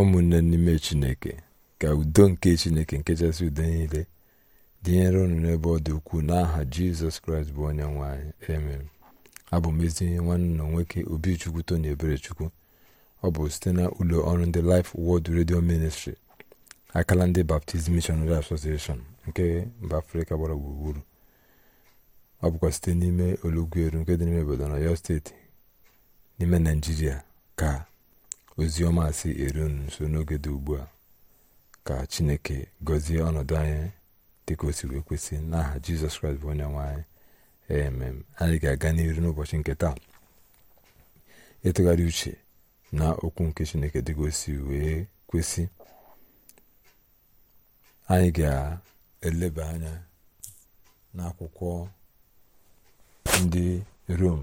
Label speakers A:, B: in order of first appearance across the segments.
A: ụmụnne n'ime chineke ka udo nke chineke nkechasị udo niile dịnyere unu n'ebe ọ dị ukwuu n'aha jizọs kraịst bụ onye nwe amen abụ m ezi nwanne na nwoke obichukwu tony eberechukwu ọ bụ site na ụlọ ọrụ ndị life world redio ministri akala ndị baptizim missionary association nke mba afrịka gbara gburugburu ọ bụkwa site n'ime eru nke dị n'ime obodo na ọyọ steeti n'ime naijiria ka ozi ọma si eru nso n'oge dị ugbu a ka chineke gọzie ọnọdụ anyị dịka o si wee kwesị n'aha jizọs kraịst bụ onye nwaanyị anyị emem anyị ga-aga n'iru n'ụbọchị nke taa ịtụgharị uche na okwu nke chineke dịka o si wee kwesị anyị ga-eleba anya n'akwụkwọ ndị rom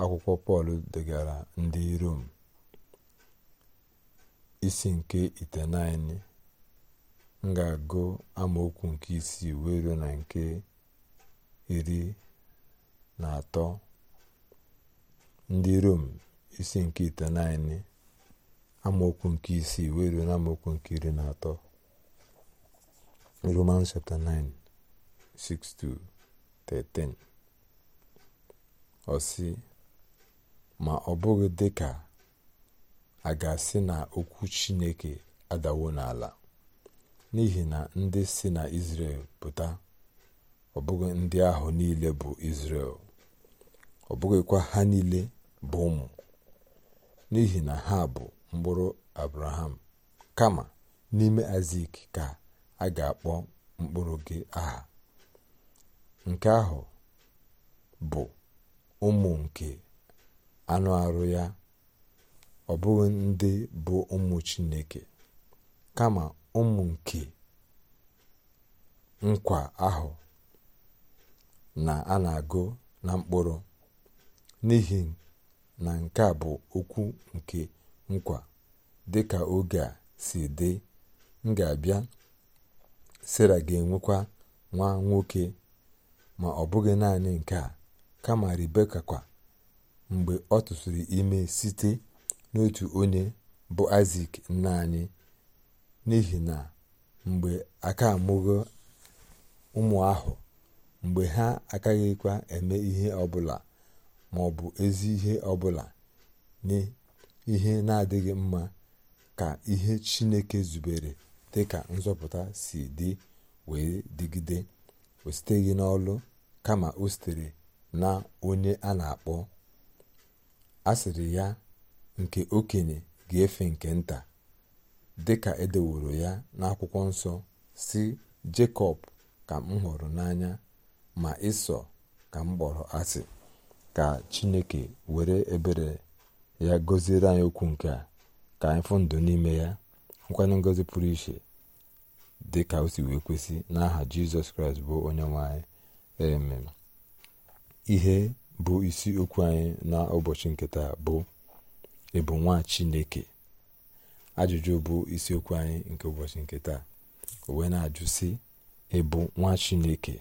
A: akwụkwọ pọl degara ndị rom isi nke itenaine m ga-agụ amaokwu nke isii wee ruo na nke iri na atọ ndị rom isi nke itenaine amaokwu nke isii wee ruo na amaokwu nke iri na atọ roman chapter 9 6 13 ọ sị ma ọ bụghị dịka a ga-asị na okwu chineke adawo n'ala n'ihi na ndị si na izrel pụta ọ ndị ahụ niile bụ izrel ọ ha niile bụ ụmụ n'ihi na ha bụ mkpụrụ abraham kama n'ime azik ka a ga-akpọ mkpụrụ gị aha nke ahụ bụ ụmụ nke anụ arụ ya ọ bụghị ndị bụ ụmụ chineke kama ụmụ nke nkwa ahụ na a na-agụ na mkpụrụ n'ihi na nke a bụ okwu nke nkwa dị ka oge a si dị m ga-abịa sera ga-enwekwa nwa nwoke ma ọ bụghị naanị nke a kama rebeka kwa mgbe ọ tụsịrị ime site n'otu onye bụ isak nna anyị n'ihi na mgbe aka amụgo ụmụ ahụ mgbe ha agaghịkwa eme ihe ọbụla ma ọ bụ ezi ihe ọbụla nye ihe na-adịghị mma ka ihe chineke zubere dị ka nzọpụta si dị wee digide o siteghị n'ọlụ kama o sitere na onye a na-akpọ asịrị ya nke okenye ga-efe nke nta dịka edeworo ya n'akwụkwọ nsọ si jakob ka m hụrụ n'anya ma ịsọ ka m kpọrọ asị ka chineke were ebere ya gọziere anyị okwu nke a ka anyị fụ ndụ n'ime ya nkwanye ngozi pụrụ iche dị ka o si wee kwesị n'aha jizọs kraịst bụ onye nwe anyị amen ihe bụ isi okwu anyị n'ụbọchị nke taa bụ ị bụ nwa chineke ajụjụ bụ isiokwu anyị nke ụbọchị nke taa o wee na-ajụ sị ị bụ nwa chineke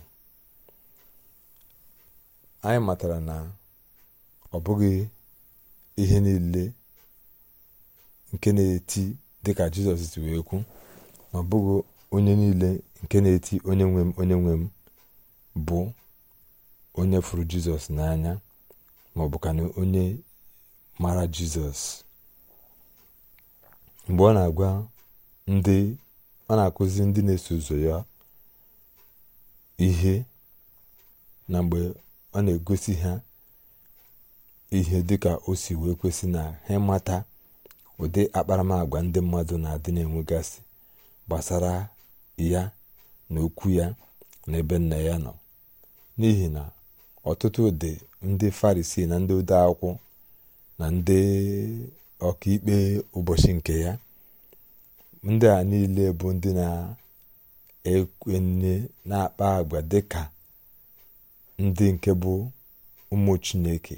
A: anyị matara na ọ bụghị ihe niile nke na-eti dịka jizọs si wee kwu ma ọ bụghị onye niile nke na-eti onye nwe onye nwe m bụ onye fụrụ jizọs n'anya ma ka onye mara jizọs mgbe ọ na-agwa ndị ọ na-akụzi ndị na-eso ụzọ ya ihe na mgbe ọ na-egosi ha ihe dị ka o si wee kwesị na ha mata ụdị akparamagwa ndị mmadụ na-adị na-enwegasị gbasara ya na okwu ya na ebe nna ya nọ n'ihi na ọtụtụ ụdị ndị farisi na ndị ode akwụkwọ na ndị ọkaikpe ụbọchị nke ya ndị a niile bụ ndị na-ekwenye na-akpa agwa dịka ndị nke bụ ụmụ chineke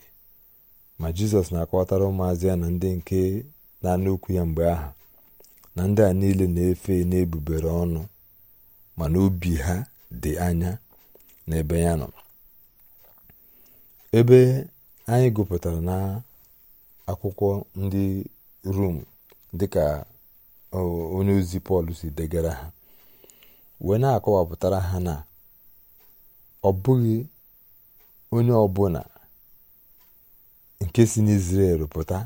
A: ma jizọs na-akọwatara ụmụazị ya na ndị nke na-anụ okwu ya mgbe ahụ na ndị a niile na-efe na-ebubere ọnụ mana obi ha dị anya n'ebe ya nọ ebe anyị gụpụtara na akwụkwọ ndị rom dịka onye ozi pọl si degara ha wee na-akọwapụtara ha na ọ bụghị onye ọbụla nke si n'izrel pụta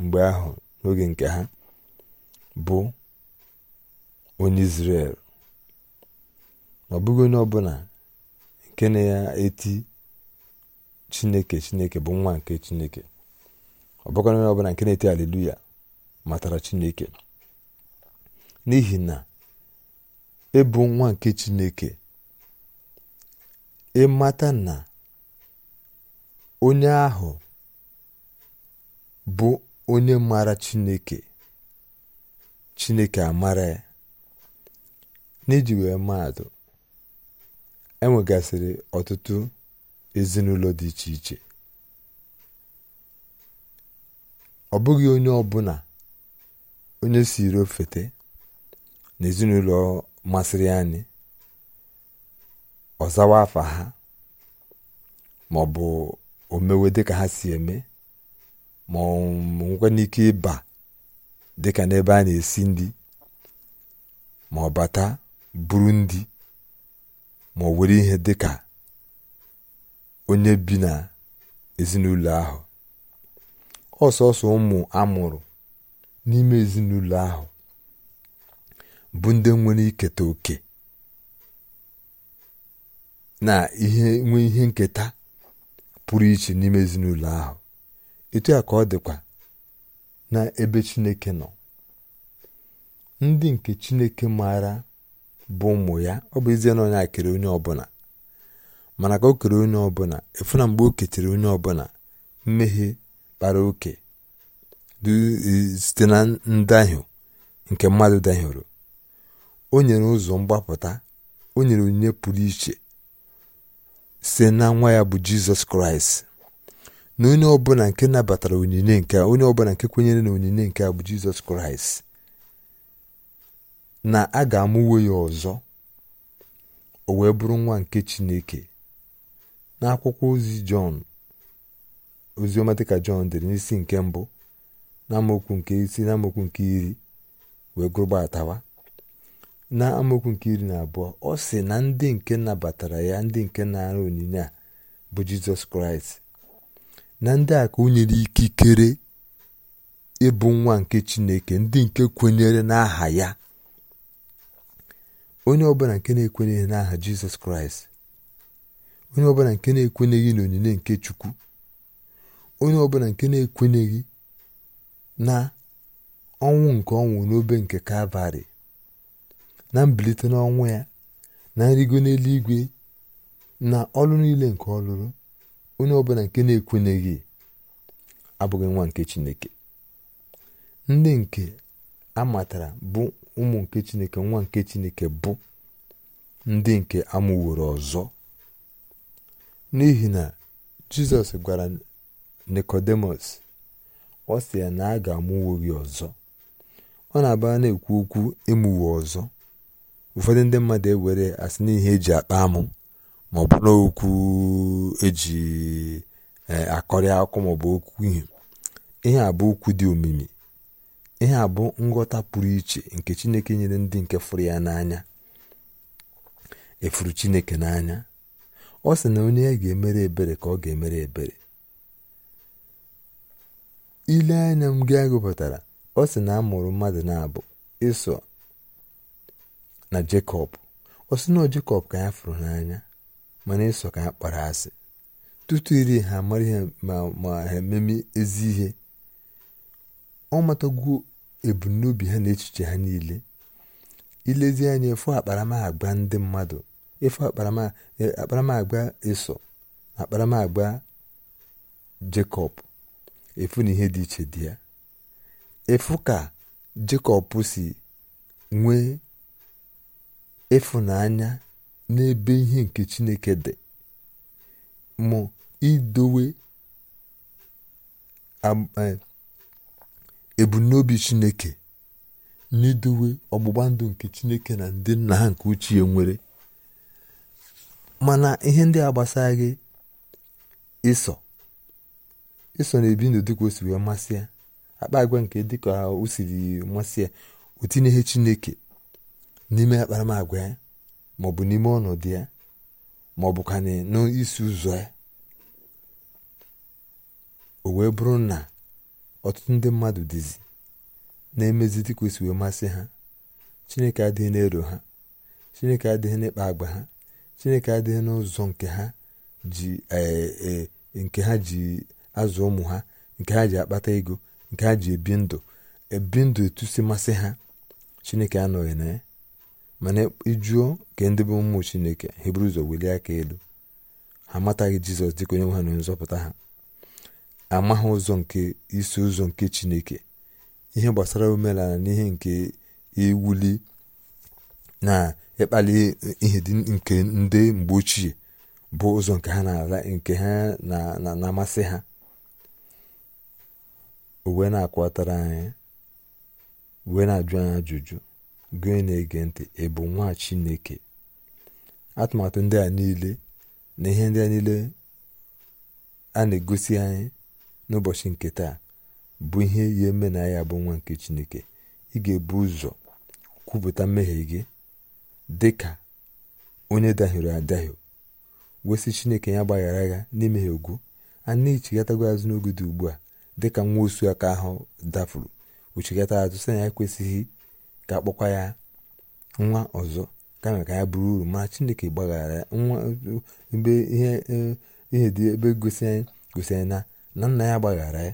A: mgbe ahụ n'oge nke ha bụ onye izrel ọ bụghị onye ọbụla nke na eti chineke chineke bụ nwa nke chineke ọ bụkwara ọbụla nke na-eti aleluya matara chineke n'ihi na ịbụ e nwa nke chineke ịmata e na onye ahụ bụ onye mara chineke chineke amara ya n'iji wee maatụ enwegasịrị ọtụtụ ezinụlọ dị iche iche ọ bụghị onye ọbụla onye siri ofete na ezinụlọ masịrị anyị ọzawa afa ha ma ọ bụ omewe dịka ha si eme ma nwekwa n'ike ịba dịka n'ebe a na-esi ndị ma ọ bata buru ndị ma ọ were ihe dịka onye bi na ezinụlọ ahụ ọsọsọ ụmụ amụrụ n'ime ezinụlọ ahụ bụ ndị nwere iketa oke na ihe nwee ihe nketa pụrụ iche n'ime ezinụlọ ahụ etu a ka ọ dịkwa na ebe Chineke nọ ndị nke Chineke maara bụ ụmụ ya ọ bụ ezie na onye a onye ọbụla mana ka o kere onye ọbụla efu na mgbe o ketere onye ọbụla mmehie kpara oke site na ndahie nke mmadụ dahiere o nyere ụzọ mgbapụta o nyere onyinye pụrụ iche site na nwa ya bụ jizọs kraịst na onye ọbụla nke nabatara onyinye nke onye ọbụla nke kwenyere na onyinye nke a bụ jizọs kraịst na a ga-amụwe ya ọzọ o wee bụrụ nwa nke chineke n'akwụkwọ ozi jọn oziọma dịka jọn dere n'isi nke mbụ na amaokwu nke isi na amaokwu nke iri wee gụrụgbatawa na amaokwu nke iri na abụọ ọ sị na ndị nke nabatara ya ndị nke na-ara onyinye a bụ jizọs kraịst na ndị a ka o nyere ikikere ịbụ nwa nke chineke ndị nke kwenyere n'aha ya onye ọbụla nke na-ekwenyeghị n'aha jizọs kraịst onye ọbụla nke na-ekwenyeghị n'onyinye nke chukwu onye ọbụla nke na-ekwenyeghị na ọnwụ nke ọnwụ n'obe nke kalvarị na mbilite n'ọnwụ ya na nrigo n'eluigwe na ọlụ niile nke ọlụrụ onye ọbụla nke na-ekwenyeghị abụghị nwa nke chineke ndị nke amatara bụ ụmụ nke chineke nwa nke chineke bụ ndị nke amụworo ọzọ n'ihi na jizọs gwara nikodemus ọ sị na a ga-amụwo gị ọzọ ọ na agba na-ekwu okwu emuwe ọzọ ụfọdụ ndị mmadụ ewere asị n'ihe eji akpa amụ ma ọ bụ n'okwu eji eh, akọrị akụkọ ma ọ bụ okwu ihe ihe a bụ okwu dị omimi ihe a bụ nghọta pụrụ iche nke chineke nyere ndị nke fụrụ ya n'anya efuru chineke n'anya ọ sị na onye a ga-emere ebere ka ọ ga-emere ebere ile anya m gị gụpụtara ọ sị na a mụrụ mmadụ na-abụ ịsọ na Jekọb ọ sị na Jekọb ka ya fụrụ n'anya mana ịsọ ka ya kpara asị tutu iri ha mara ihe ma ha ememe ezi ihe ọ matagwuo ebumnobi ha na echiche ha niile ilezi anya efu agba ndị mmadụ efu akparamagwa ịsọ akparamagba Jekọb efu na ihe dị iche dị ya efu ka Jekọb si nwee ịfụnanya n'ebe ihe nke Chineke dị mụ idowe e, ebumnobi Chineke n'idowe ọgbụgba ndụ nke Chineke na ndị nna ha nke ochie nwere mana ihe ndị a gbasaghị ịsọ iso na ebi ndụ dịka o si wee masị ya akpa agwa nke dịka o siri masị ya o tinyeghị chineke n'ime akparamagwa ya maọbụ n'ime ọnọdụ ya maọbụ ka n'isi ụzọ ya o wee bụrụ na ọtụtụ ndị mmadụ dịzi na-emezi dịka o si wee masị ha chineke adịghị na-ero ha chineke adịghị n'ịkpa agba ha chineke adịghị n'ụzọ nke ha ji eh, eh, azụ ụmụ ha nke ha ji akpata ego nke ha ji ebi ndụ ebi ndụ etu si masị ha chineke anọghị na ya mana ịjụọ nke ndị bụ ụmụ chineke ha ụzọ welie aka elu ha amataghị jizọs dịka onye nwe ha na onye nzọpụta ha amaghị ụzọ nke isi ụzọ nke chineke ihe gbasara omenala na ihe nke iwuli na ịkpali ihe dị nke ndị mgbe ochie bụ ụzọ nke ha na-amasị ha o na-akwatara anyị wee na-ajụ anyị ajụjụ gị na-ege ntị ị nwa chineke atụmatụ ndị a niile na ihe ndị a niile a na-egosi anyị n'ụbọchị nke taa bụ ihe ya eme na ya bụ nwa nke chineke ị ga-ebu ụzọ kwupụta mmehie gị dị ka onye dahiri adahi wesị chineke ya gbaghara ya n'imehie ugwu a na-echighatago azụ ugbu a dịka nwa osu aka ahụ dafuru uchekata azụ sị na ya ekwesịghị ka akpọkwa ya nwa ọzọ kama ka ya bụrụ uru ma chineke gbaghara nwa ihe dị ebe gosi anyị na na nna ya gbaghara ya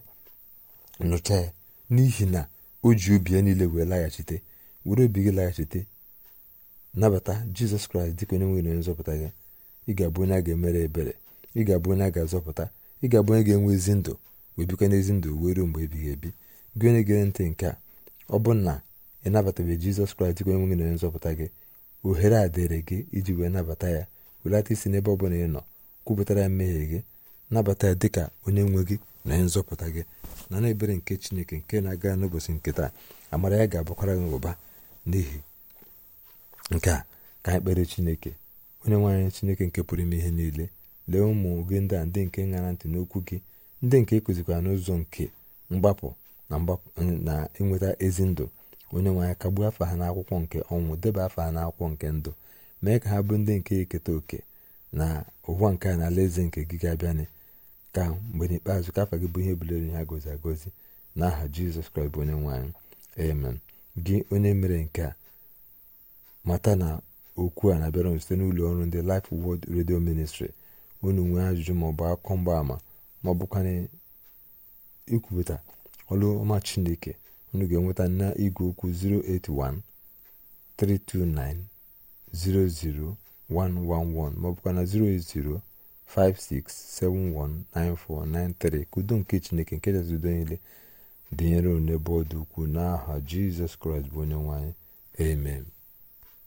A: nụcha ya n'ihi na o ji obi ya niile wee laghachite were obi gị laghachite nabata jizọs kraịst dịka onye nwere nzọpụta gị ị ga-abụ onye a ga-emere ebere ị ga-abụ onye a ga-azọpụta ị ga-abụ onye ga-enwe ezi ndụ wee bikwa n'ezi ndụ wee ruo mgbe ebighị ebi gị onye gere ntị nke a ọ bụ na ị nabatabeghị jizọs kraịst ka onye nwe gị na nzọpụta gị ohere a dịrị gị iji wee nabata ya welata isi n'ebe ọ bụla ị nọ kwupụtara ya mmehie gị nabata ya dịka onye nwe gị na onye nzọpụta gị na na ebere nke chineke nke na-aga n'ụbọchị nke taa amara ya ga-abakwara gị ụba n'ihi nke a ka anyị kpere chineke onye nwaanyị chineke nke pụrụ ime ihe niile lee ụmụ gị ndị a ndị nke ṅara ntị n'okwu gị ndị nke ekụzikwara n'ụzọ nke mgbapụ na ịnweta eh, ezi ndụ onye nwe anyị kagbuo afọ ha n'akwụkwọ nke ọnwụ deba afọ ha n'akwụkwọ nke ndụ mee ka ha bụ ndị nke eketa oke na ụwa nke a na ala eze nke gị ga ka mgbe n'ikpeazụ ka afọ gị bụ ihe bulere ha gozi agozi n'aha aha jizọs kraịst bụ onye nwe amen gị onye mere nke a mata na okwu a na-abịara site n'ụlọ ọrụ ndị lif wọd redio Ministry unu nwee ajụjụ maọbụ akụkọ mgbaama ma ọ bụkwa ikwupụta ọrụ ọma chineke unu ga-enweta na igwe okwu 081 329 00111 ma ọ bụkwa na 080 ka udo nke chineke nke chasị niile dịnyere n'ebe ọ dị ukwuu n'aha jizọs kraịst bụ onye nwanyị amen